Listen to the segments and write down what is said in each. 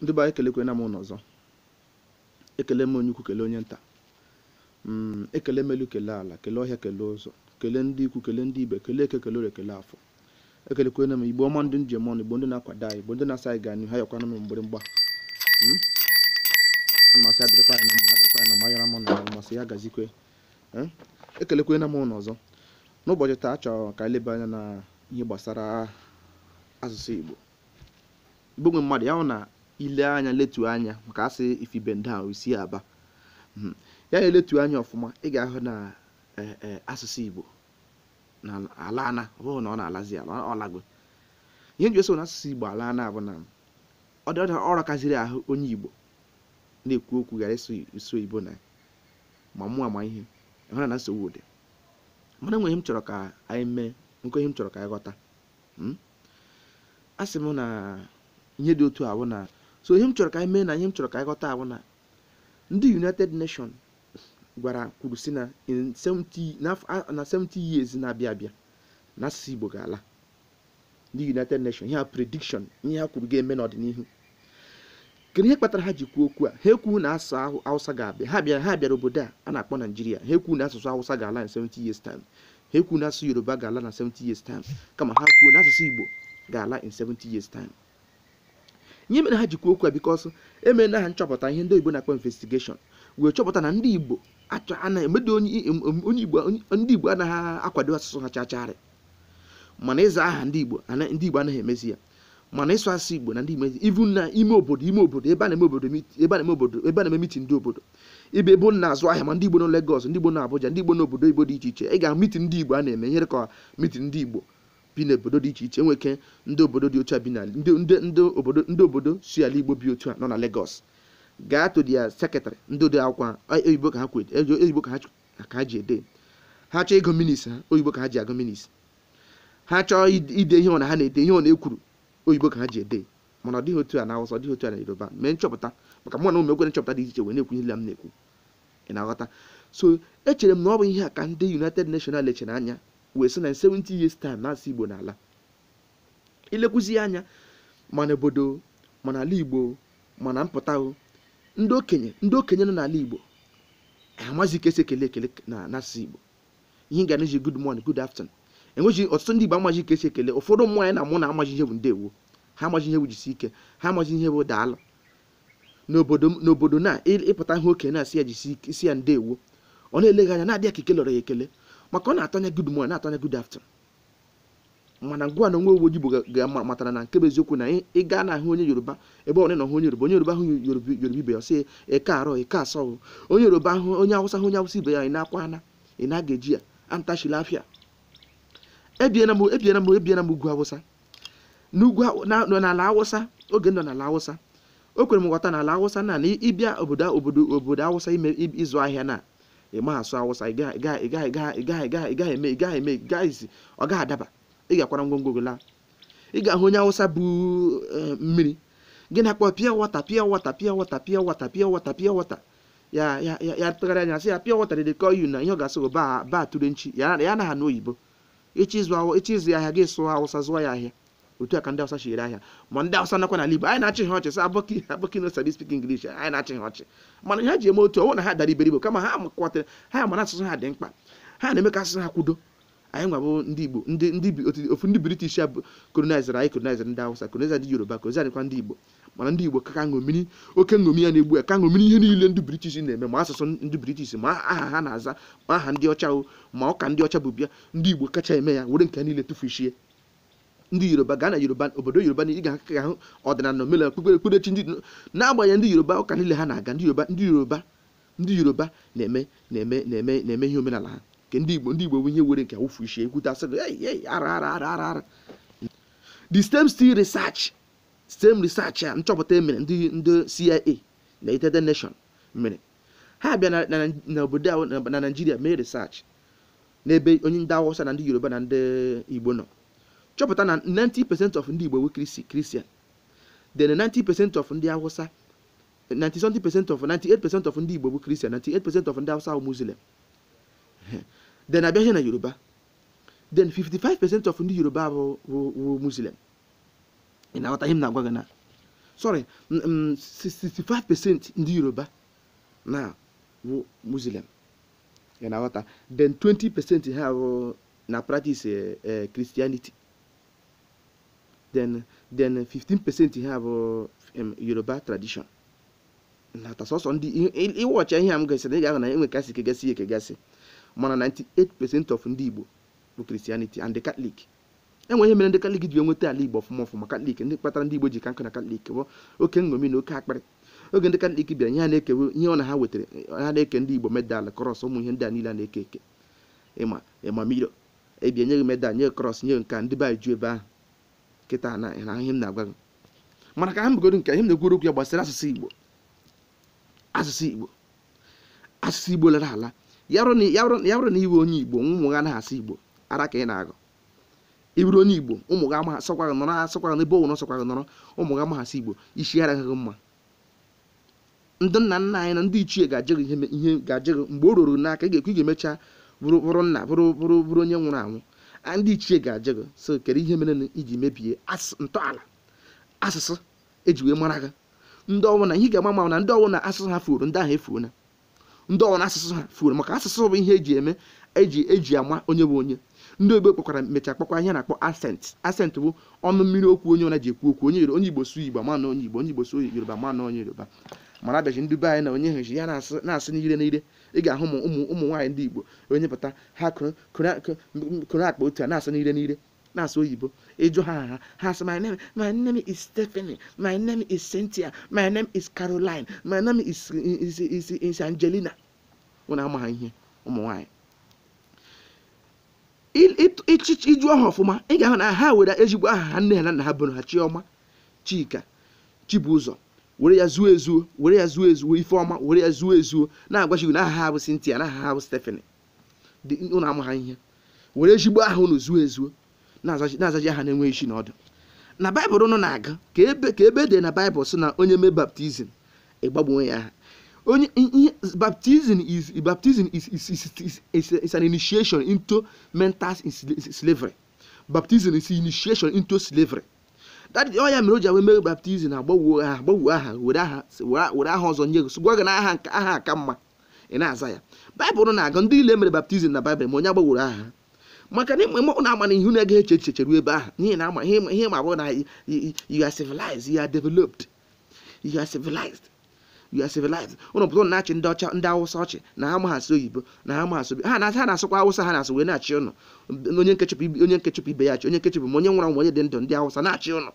ndị be anyị kelekwana m ụnụ ọzọ ekele m onye ukwu kele onye nta mm, ekele melu kele ala kele ọhịa kele ụzọ kele ndị ikwu kele ndị ibe kele eke kele ore kele afọ ekelekwena m igbo ọma ndị njem ọnụ igbo ndị na-akwado anyị igbo ndị na-asa anyị ga n'ihu ha yakwana m mgbịrịmgba mm, a na masị adịrịkwa ya na mma adịrịkwa ya na mma yara m na ya masị ya gazikwe eh, ekelekwena m ụnụ ọzọ n'ụbọchị taa achọrọ ka anyị leba anya na ihe gbasara asụsụ igbo igbo nwe mmadụ ya na ile anya letu anya maka asị ifibe ndị ahụ isi aba hmm. ya na eletu anya ọfụma ị ga-ahụ na e, e, asụsụ Igbo na alana ọ bụghị na ọ na-alazi ala ọ lago ihe nji eso na asụsụ Igbo alana bụ na ọ dị ọrụ kaziri ahụ onye Igbo na-ekwu okwu gara iso Igbo na ma mụ ama ihe hụra na nsogbu dị mana ihe m chọrọ ka anyị mee nke ihe m chọrọ ka anyị ghọta hmm. asị m na ihe dị otu ahụ na so ihe m chọrọ ka anyị mee na ihe m chọrọ ka anyị ghọta na ndị united nation gwara kwuru si na na 70 years na-abịa abịa na asụsụ igbo ga-ala ndị united nation ihe a prediction ihe ha kwuru ga-eme n'ọdịnihu kedu ihe kpatara ha ji kwuo okwu a ha ekwu na asụsụ hausa ga-abịa ha bịara ha bịara obodo a a na-akpọ naijiria ha ekwu na asụsụ hausa ga-ala na 70 years time ha ekwu na asụsụ yoruba ga-ala na 70 years time kama ha kwuo na asụsụ igbo ga-ala in 70 years time ihe mere ha jikwa okwu a bikọs emere ha nchọpụta ihe ndị Igbo na-akpọ investigeshọn wee chọpụta na ndị Igbo emedo onye Igbo ndị Igbo anaghị akwado asụsụ ha chacharị mana ịza aha ndị Igbo ndị Igbo anaghị emezi ya mana ịsụ asụsụ Igbo na ndị Igbo ivu na ime obodo ime obodo ebe a na-eme obodo ebe a na-eme obodo ebe a na-eme mitin ndị obodo ibe ebe na-azụ ahịa ma ndị Igbo na Legọs ndị Igbo na Abuja ndị Igbo obodo Igbo dị iche iche ị ga-ahụ ndị Igbo a na-eme nyere ka mitin ndị Igbo bi n'obodo dị iche iche enweke ndị obodo dị otu a bi na ndị obodo si ala igbo bi otu a nọ na Lagos gaa to dia sekịtarị ndị ode akwụkwọ oyibo ka ha ji ede ha chọọ ego minis ha oyibo ka ha ji agụ minis ha chọọ ide ihe ọ na ha na-ede ihe ọ na-ekwuru oyibo ka ha ji ede mana ọ dịghị otu a na awụsa ọ dịghị otu a na yoruba mee nchọpụta maka mụ na ụmụ ekwere nchọpụta dị iche wee na-ekwu ihe m na-ekwu ị na-aghọta so echere m na ọ bụ ihe a ka ndị united national echere anya wee sị na 70 years time na-asị igbo n'ala ilekwuzi anya mana obodo mana ala igbo mana mpụta ndị okenye ndị okenye nọ n'ala igbo amazi ka ekele ekele na n'asụsụ igbo ihe ga ji good morning good afternoon enweghị ọtụtụ ndị igbo amaghị ka ekele ụfọdụ mmụọ anyị na mụ na amaghị ihe bụ ndewo ha amaghị ihe bụ jisi ike ha amaghị ihe bụ daalụ n'obodo na ịpụta ihe okenye na-asị ya jisi isi ya ndewo ọ na-eleghị anya na-adịghị ka ikele ya ekele maka ọ na-atọnye good morning na-atọnye good afternoon mana ngwa na onwe uwe ga-amatara na nke bụ eziokwu na ị gaa na ahụ onye yoruba ebe ọbụla na ahụ onye yoruba onye yoruba ahụ yoruba ibe ya sị ịka arọ eke asọ onye yoruba ahụ onye awụsa ahụ onye awụsa ibe ya ị na-akwa ana ị na-aga eji ya antachila afịa ebiena m ebiena m ebiena m ugwu awụsa n'ugwu n'ala awụsa oge nọ n'ala awụsa o kwere m nghọta n'ala awụsa na na ịbịa obodo obodo obodo awụsa ime ịzụ ahịa na ị ma asụ awụsa ị gaghị gaghị eme ị eme gaghịzi ọ gaghị adaba ị ga-akwara ngwongwo laa ị ga-ahụ onye awụsa bụ eh, mmiri gị na-akpọ pịa wata pịa wata pịa wata pịa wata pịa wata pịa wata ya ya ya tụgharịa anya sị ya pịa wata dedekọ yu na ihe ọ ga-asị ba ba tụrụ nchi ya na ha na oyibo echi ya ahịa gị sụọ awụsa zụọ ya ahịa otu a ka ndị Hausa si ere ahịa ma ndị Hausa nakwa n'ala Igbo anyị na-achị ha ọchị sa abọki abọki no sabi spik English anyị na-achị ha ọchị mana ha ji eme otu ọwụ na ha dara iberibo kama ha kwatara ha ma na asụsụ ha dị mkpa ha na-eme ka asụsụ ha kwudo anyị nwabụ ndị Igbo ofu ndị British ya colonizer anyị colonizer ndị Awụsa colonizer ndị Yoruba colonizer dịkwa ndị Igbo mana ndị Igbo ka ṅomiri oke ṅomi ya na-egbu ya ka ṅomiri ihe niile ndị British na-eme ma asụsụ ndị British ma aha ha na-aza ma aha ndị ọcha ma ọka ndị ọcha bụ bịa ndị Igbo kacha eme ya were nke niile tụfuchie ndị yoruba ga na yoruba obodo yoruba na ị ga-aka ahụ ọdịnala na omenala okpukpere okpukperechi ndị na agbanye ndị yoruba ụka niile ha na-aga ndị yoruba ndị yoruba ndị yoruba na-eme na-eme na-eme na-eme ihe omenala ha nke ndị igbo ndị igbo bụ ihe were nke awụfu ishi ekwute asị ara ara ara ara ara the stem still research stem research a ah, nchọpụta emere ndị ndị CIA na United Nation mere ha bịa na obodo na Naijiria mee research n'ebe onye ndị Awụsa na ndị yoruba na ndị igbo nọ chọpụta na 90% of ndị Igbo bụ Christian then 90% of ndị Hausa 97% of 98% of ndị Igbo bụ Christian 98% of ndị Hausa bụ Muslim then abịaghị na Yoruba then 55% of ndị Yoruba bụ Muslim ị na-aghọta ihe m na-agwa gị na sorry 65% ndị Yoruba na bụ Muslim ị na-aghọta then 20% ha bụ na practice eh, eh, Christianity then then 15% ha bụ yoruba tradition nata sọsọ ndị ịwọcha ihe a m gasịrị ị ga-ahụ na enwe kasị kegasị ekegasị mana 98% of ndị igbo bụ christianity and the catholic enwe ihe mere ndị katọlik ji enweta ala igbo ọfụma ọfụma katlik ndị kpatara ndị igbo ji ka nkụ na katlik bụ oke nṅomi na oke akparị oge ndị katọlik bịara ihe a na-ekewe ihe ọ na ha wetara ha na-eke ndị igbo medal kọrọs ụmụ ihe ndị a niile a na-eke eke ịma ịma miro ebia nye medal nye kọrọs nye nka ndị be ju ebe ahụ kịta na ihe m na-agwa gị mana ka ha mbegodo nke ihe m na-ekwuru okwu ya gbasara asụsụ igbo asụsụ igbo asụsụ igbo lara ala ya bụrụ na iwe onye igbo ụmụ gị anaghị asụ igbo ara ka ị na-agụ iburu onye igbo ụmụ gị amaghị asọkwa gị nọrọ asọkwa gị n'ebe ụnụ sọkwa gị nọrọ ụmụ gị amaghị asụ igbo isi araghị gị mma ndị nna nna anyị na ndị ichie ga-ajụ gị ihe ga-ajụ gị mgbe o ruru n'aka ị ga-ekwu ị ga-emecha bụrụ nna bụrụ bụrụ bụrụ onye nwụrụ anwụ ndị ichie ga-aje gị so kedu ihe mere iji mebie ntọala asụsụ eji wee mara gị ndị na ihe ga-agba ma na ndị ọwụ na asụsụ ha furu ndị ahụ efuo na ndị ọwụ na asụsụ ha furu maka asụsụ bụ ihe eji eme eji eji ama onye bụ onye ndị ogbe kpọkwara mecha kpọkwa ihe na-akpọ asent asent bụ ọnụ mmiri okwu onye ọna ji ekwu okwu onye onye igbo sụ igbo ma na onye igbo onye igbo sụ yoruba ma na onye yoruba mana abịaji ndị be anyị na onye heji ya na-asị n'ire n'ire ị ga-ahụ ụmụ ụmụ nwaanyị ndị igbo onye pụta ha kụrụ akpa otu a na-asị n'ire n'ire na-asụ oyibo ịjụ ha ha ha sị my name my name is Stephanie my name is Cynthia my name is Caroline my name is is is Angelina ụna ama ha ihe ụmụ nwaanyị ịchịchị iju aha ọfụma ị ga-ahụ na ha were ezigbo aha ha nne ha na nna ha bụrụ ha Chioma Chika Chibụzọ were ya zuo ezuo were ya zuo ezuo ifeọma were ya zuo ezuo na-agwachighị agwa na aha ha bụ Cynthia na aha ha bụ Stephanie dị ụnụ amụ ha ihe were ezigbo aha ụnụ zuo ezuo na-azaji aha na-enweghị isi na ọdụ na baịbụl ụnụ na-aga ka ebe ka ebe dị na baịbụl sị na onye mee baptizim ịgbagbuo ya aha onye ihe baptizim is baptizim is is is an initiation into mental slavery baptizim is initiation into slavery dadị ọ ya mere o ji awe mere baptizim agbagwo aha agbagwo aha were aha were aha ọzọ nye gị gwa gị na aha aha aka mma ị na-aza ya baịbụl na-agụ ndị ile mere baptizim na baịbụl ma onye agbagworo aha maka na ịmụ na ama na ihu na-ege eche echiche ruo ebe ahụ n'ihi na ama ihe ma bụ na you are civilized you are developed you are civilized you are civilized ụlọ pụtụ na-achị ndị ọcha ndị awụsa ọchị na ha amaghasị oyibo na ha amaghasị obi ha na-asụkwa awụsa ha na-asụ wee na-achị ụnọ onye nkechụpụ ibe ya achị onye nkechụpụ ma onye nwụrụ anwụ onye dị ndụ ndị awụsa na-achị ụnụ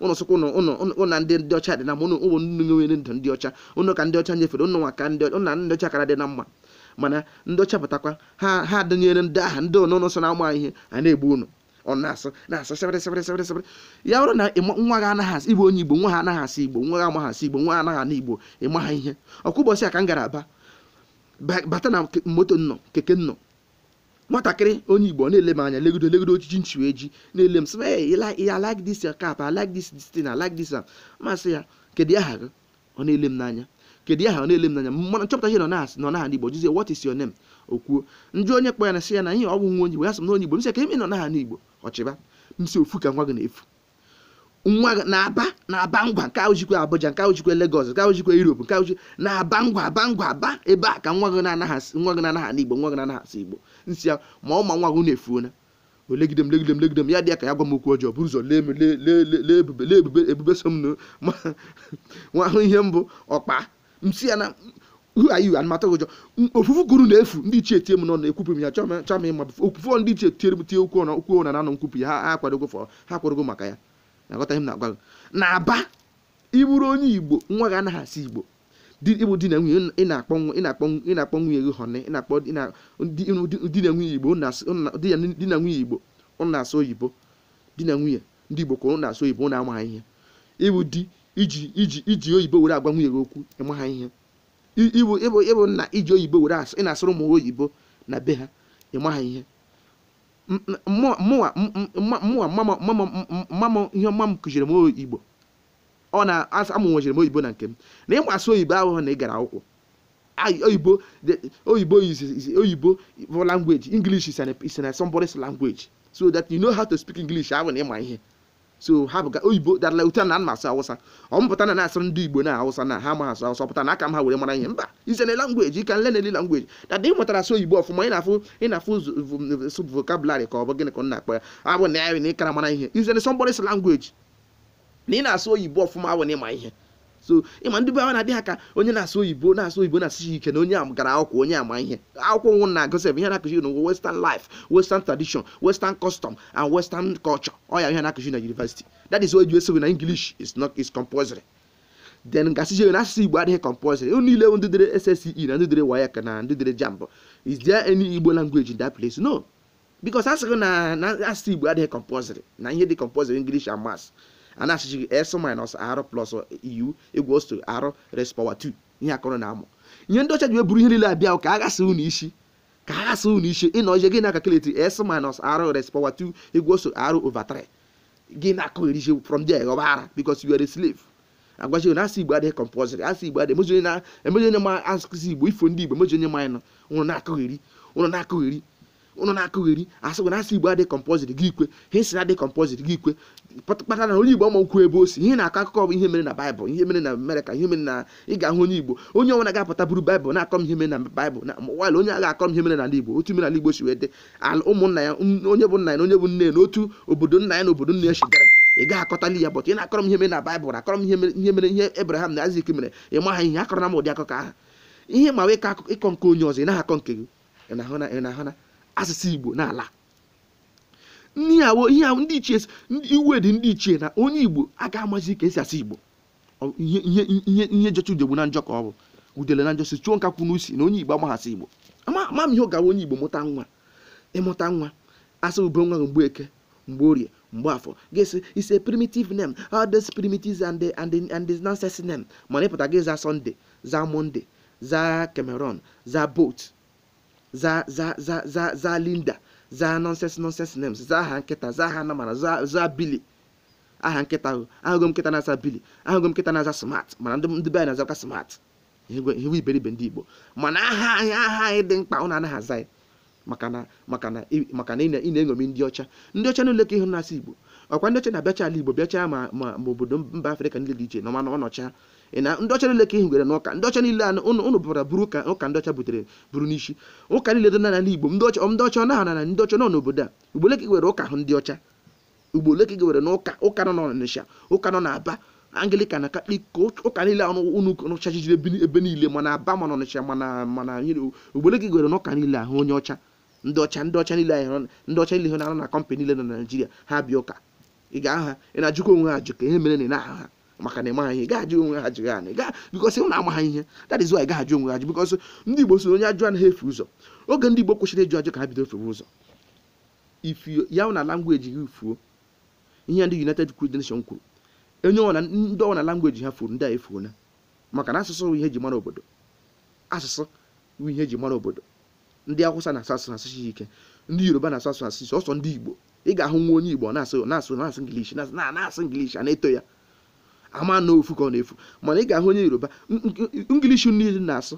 ụnụ sụkwa ụnụ na ndị ndị ọcha dị na mma ụnụ ụmụ nnu nwere ndụ ndị ọcha ụnụ ka ndị ọcha nyefere ụnụ nwa ka na ndị ọcha kara dị na mma mana ndị ọcha pụtakwa ha ha dịnyere ndị aha ndị ụnụ nso na-ama ihe a na-egbu ụnụ ọ na-asụ na-asụ sịrịsịrịsịrịsịrị ya bụrụ na nwa gị anaghị asị igbo onye igbo nwa ha anaghị asị igbo nwa gị amaghị asị igbo nwa anaghị igbo ịma ha ihe ọkwa ụbọchị a ka m gara aba bata na moto nnọ keke nnọ nwatakịrị onye igbo na-ele m anya legodo legodo ojiji nchi wee ji na-ele m sị ya like this your cap I like this this I like this masị ya kedu aha gị ọ na-ele m n'anya kedu aha ọ na-ele m n'anya mana nchọpụta ihe nọ n'aha n'igbo jụzie what is your name okwuo ndị onye kpọ ya na sị ya na ihe ọ bụ nwa onye igbo ya sị m na onye igbo m sị ka ime nọ n'aha n'igbo ọchịba m si ofu ka nwa gị na-efu nwa na-aba na-aba ngwa nke ojikwa Abuja nke ojikwa legos nke ojikwa Europe nke na-aba ngwa aba ngwa aba ebe a ka nwa gị na-anaghasị nwa gị na-anaghasị Igbo nwa gị na Igbo nsi ya ma ọ ma nwa gị na-efuona olegide m legide m legide m ya dị ya ka ya gwa m okwu ọjọọ bụrụ ụzọ lee ebube lee ebube ebube so m ma nwa ahụ ihe mbụ ọkpa msi ya na who are ụjọ ofufu guru na-efu ndị ichie tie m n'ọnụ ekwupụ m ya chọọ m ịma ofufu ndị ichie tie okwu ọnụ okwu ọnụ na anọ nkwupụ ya ha akwadogo ha akwadogo maka ya aghọtaghị m na agwa na-aba ịbụrụ onye igbo nwa gị anaghị asị igbo ịbụ di na nwunye ị na-akpọ nwunye gị hone ị na-akpọ di na nwunye igbo di na nwunye igbo ụnụ asụ oyibo di na nwunye ndị igbo kwụrụ na-asụ oyibo na-amaghị ihe ịbụ di iji iji iji oyibo were agwa nwunye gị okwu ịmaha ihe ịbụ ịbụ na iji oyibo were ị na-asụrụ ụmụ oyibo na be ha ịmaha ihe mụwa ihe mma m kụziri m igbo ọ na-amụ oyibo na nke m na ịgba asụ oyibo ahụhụ na ị gara akwụkwọ oyibo oyibo oyibo for language english is an is language so that you know how to speak english ahụ na ịma ihe so ha bụ ka oyibo darala ute na m asụ awụsa ọ mpụta na na-asụrụ ndị igbo na awụsa na ha ma asụ awụsa pụta na aka m ha were mara ihe mba izene langweji ka nle na-eli langweji na ị mụtara asụ oyibo ọfụma ị na-afụ ị na-afụ vokabularị ka ọ bụ gịnị ka ọ na-akpọ ya abụ na ya na ịkara mara ihe izene sọmbọrịs langweji na ị na-asụ oyibo ọfụma awụ na ịma ihe so ịma ndị be a na-adị ha ka onye na-asụ oyibo na-asụ oyibo na asụ ike na onye a gara akwụkwọ onye ama ihe akwụkwọ nwụ na-agosi ebe ihe na-akụzi n'ụwa western life western tradition western custom and western culture ọ ya ihe na-akụzi na university that is why you say na english is not is compulsory then gasịzie na asụsụ igbo adịghị compulsory unu niile ndị dere sse e na ndị dere wayak na ndị dere jamb is there any igbo language in that place no because asịghị na asụsụ igbo adịghị compulsory na ihe dị compulsory english and maths a achiji s minus r plus u egwu r res power 2 ihe akọrọ na amụ ihe ndị ọcha ji weburu ihe niile abịa ka aghasa unu isi ka aghasa unu isi ịnọ ije gịna na-akakeleti s minus r res power 2 egwu osto r over 3 gị na-akọgheriche from there ghọba ara because you are a slave agwaji na asị igbo adịghị compulsory asị igbo adịghị emeji onye ma asụsụ igbo ifo ndị igbo emeji onye na-akọgheri ụnụ na ụnụ na-akụgheri asị gwana asị igbo adị kọmpọzit gị ikwe ha si adị kọmpọzit gị ikwe kpatara na onye igbo ama okwu ebe o si ihe na-akọ akụkọ bụ ihe mere na baịbụl ihe mere na amerịka ihe mere na ị ga-ahụ onye igbo onye ọnwa na-agapụta buru baịbụl na-akọ m ihe mere na baịbụl na mwail onye agha akọ m ihe mere n'ala igbo otu mere n'ala igbo si wee dị ụmụnna ya onye bụ nna ya na onye bụ nne ya na otu obodo nna ya na obodo nne ya si gara ị gaghị akọtali ya bọtụ ị na-akọrọ m ihe mere na baịbụl akọrọ m ihe mere ihe ebraham na azik mere ị maha ihe akọrọ na m ụdị akụkọ ahụ ihe ma wee ịkọ nke onye ọzọ ị na akọ nke gị ị na-ahụ na asụsụ igbo n'ala ihe ahụ ndị ichie iwe dị ndị ichie na onye igbo aga amazi ka esi asụ igbo ihe jọcha udegbu na njọ ka ọ bụ udele na njọsi chụọ nka n'usi na onye igbo amaghasị igbo ama m ihe ọ gara onye igbo mụta nwa ịmụta nwa asa ube nwa mgbe eke mgbe orie mgbe afọ gịsị isi a primitive name all these primitives and the, and mana ịpụta gị za Sunday za monde za cameron za bot zaa za za za za linda zaa nonsense nonsense names zaa aha nkịta za aha za za bili aha nkịta ahụ ahụgo nkịta na-aza bili ahụgo m nkịta na-aza smart mana ndị be anyị na-azakwa smart ihewe iberibe ndị igbo mana aha anyị aha anyị dị mkpa ụnụ anaghị aza anyị maka na maka na maka na ị na-eṅomi ndị ọcha ndị ọcha niile ka ihe na igbo ọkwa ndị ọcha na bịacha ala igbo bịacha ma ma obodo mba afrịka niile dị iche na ọma na ọnọcha ị na ndị ọcha niile ka ihigwere na ụka ndị ọcha niile ụnụ bụbara bụrụ ka ụka ndị ọcha butere bụrụ n'isi ụka niile dị n'ala igbo ndị ọcha ndị ọcha ọnaha na ndị ọcha nọ n'obodo a ugbole ka gwere ụka ahụ ndị ọcha ugbole ka gwere na ụka ụka nọ n'Ọnịsha ụka nọ n'Aba Anglican na ko ụka niile anụ ụnụ ọcha jijiri ebe niile mana Aba mana Ọnịsha mana mana ugbole ka gwere na ụka niile ahụ onye ọcha ndị ọcha ndị ọcha niile ndị ọcha niile na-anọ na kọmpanị niile na naijiria ha bịa ụka ị ga-aha ị na-ajụkwa onwe ha ajụ ka ihe mere na ị na-aha ha maka na ịmaghị ihe gaajụ onwe ha jighị anị gaa bikos ụna amaghị ihe that is why gaajụ onwe ha ji bikos ndị igbo so onye ajụ anaghị efe ụzọ oge ndị igbo kwesịrị ịjụ ajụ ka ha bido fewe ụzọ ifu ya na langweji gị fuo ihe ndị united nation kwuru onye ọna ndị na langweji ha furu ndị a efuo na maka na asụsụ ihe ji mara obodo asụsụ ihe ji mara obodo ndị awụsa na-asụ asụ asụsụ ike ndị yoruba na-asụ asụ asụsụ ọsọ ndị igbo ị ga-ahụ nwa onye igbo na-asụ na-asụ na-asụ ingilishi na-asụ ingilishi a na-eto ya ama na ofu ka ọ na-efu mana ị ga-ahụ onye yoruba ngilishi niile na-asụ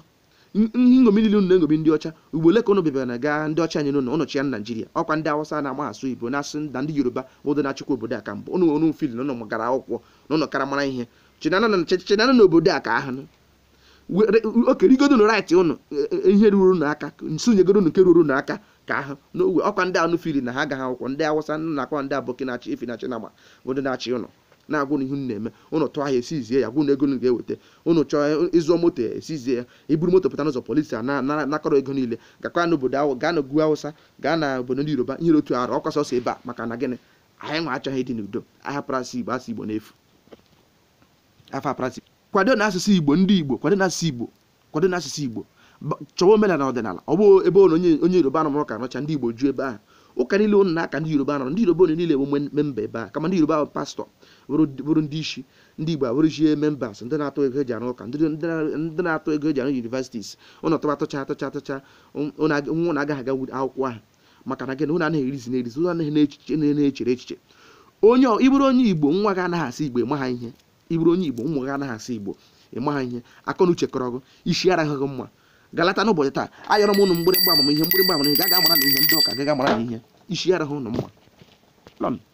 ngomi niile na ngomi ndị ọcha ugbo ole ka ụnụ bịara na gaa ndị ọcha anyị nụ na ụnọchi ya na naijiria ọkwa ndị awụsa na-agba asụ igbo na-asụ na ndị yoruba bụ na achịkwa obodo a ka mbụ ụnụ ọnụ fil na gara akwụkwọ na ụnụ kara mara ihe chinana na obodo a ka ahụ okerigodo nụ rait ụnụ e, e, e, ihe ruru n'aka nsonyegoro nke ruru n'aka ka ahụ n'ogwe ọkwa ndị anụ fili na ha agaghị akwụkwọ ndị awụsa na akwa ndị abụkị na-achị ifi na chinama bụ ndị na-achị ụnụ na-agwụ n'ihu na-eme ụnụ tụọ ahịa esizie ya gwụ na ego ga-eweta ụnụ chọọ ịzụọ moto esizie ya e, iburu moto pụta n'ụzọ polisi a na-akọrọ ego niile gakwa n'obodo ahụ gaa n'ogwu awụsa gaa na obodo ndị yoruba ihe otu arụ ọkwa sọsọ ebe a maka na gịnị anyị nwa achọghị ịdị n'udo ahapụrụ asụ igbo asụ igbo n'efu afọ aprasị kwado na asụsụ igbo ndị igbo kwado na asụsụ igbo kwado na asụsụ igbo chọwa omenala ọdịnala ọ bụ ebe ụlọ onye yoruba nọrọ ka nọcha ndị igbo ju ebe ahụ ụka niile ụnụ na-aka ndị yoruba nọrọ ndị yoruba ụnụ niile bụ memba ebe a kama ndị yoruba bụ pastọ bụrụ ndị isi ndị igbo abụrụzie members ndị na-atụ ego eji arụ ụka ndị na-atụ ego eji arụ universities ụnụ tụba tụcha atụcha atụcha nwa na-agaghị aga akwụkwọ ahụ maka na gị na ụnụ anaghị erizi n'erizi ụnụ anaghị echiche na-echere echiche onye ịbụrụ onye igbo nwa gị anaghị asị igbo ịma ihe ịbụrụ onye igbo ụmụ gị anaghị asị igbo ịma ihe akọ na uche kọrọ gụ isi araghị gị mma galata n'ụbọchị taa ayọrọ m ụnụ mgbịrịgba amamihe mgbịrịgba amamihe ga-aga amara na ihe ndị ụka gaga amara na ihe isi araghị ụnụ mma